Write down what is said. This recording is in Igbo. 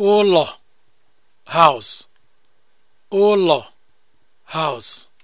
ụlọ house house